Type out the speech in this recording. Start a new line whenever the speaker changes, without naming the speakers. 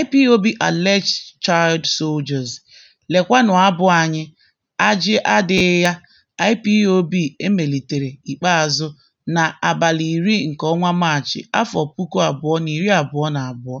IPOB alleged child soldiers: Lekwanụ abụ anyị, “Ajị adịghị ya” IPOB emelitere ikpeazụ na abalị iri nke ọnwa Maachị, afọ puku abụọ abụọ na na iri abụọ.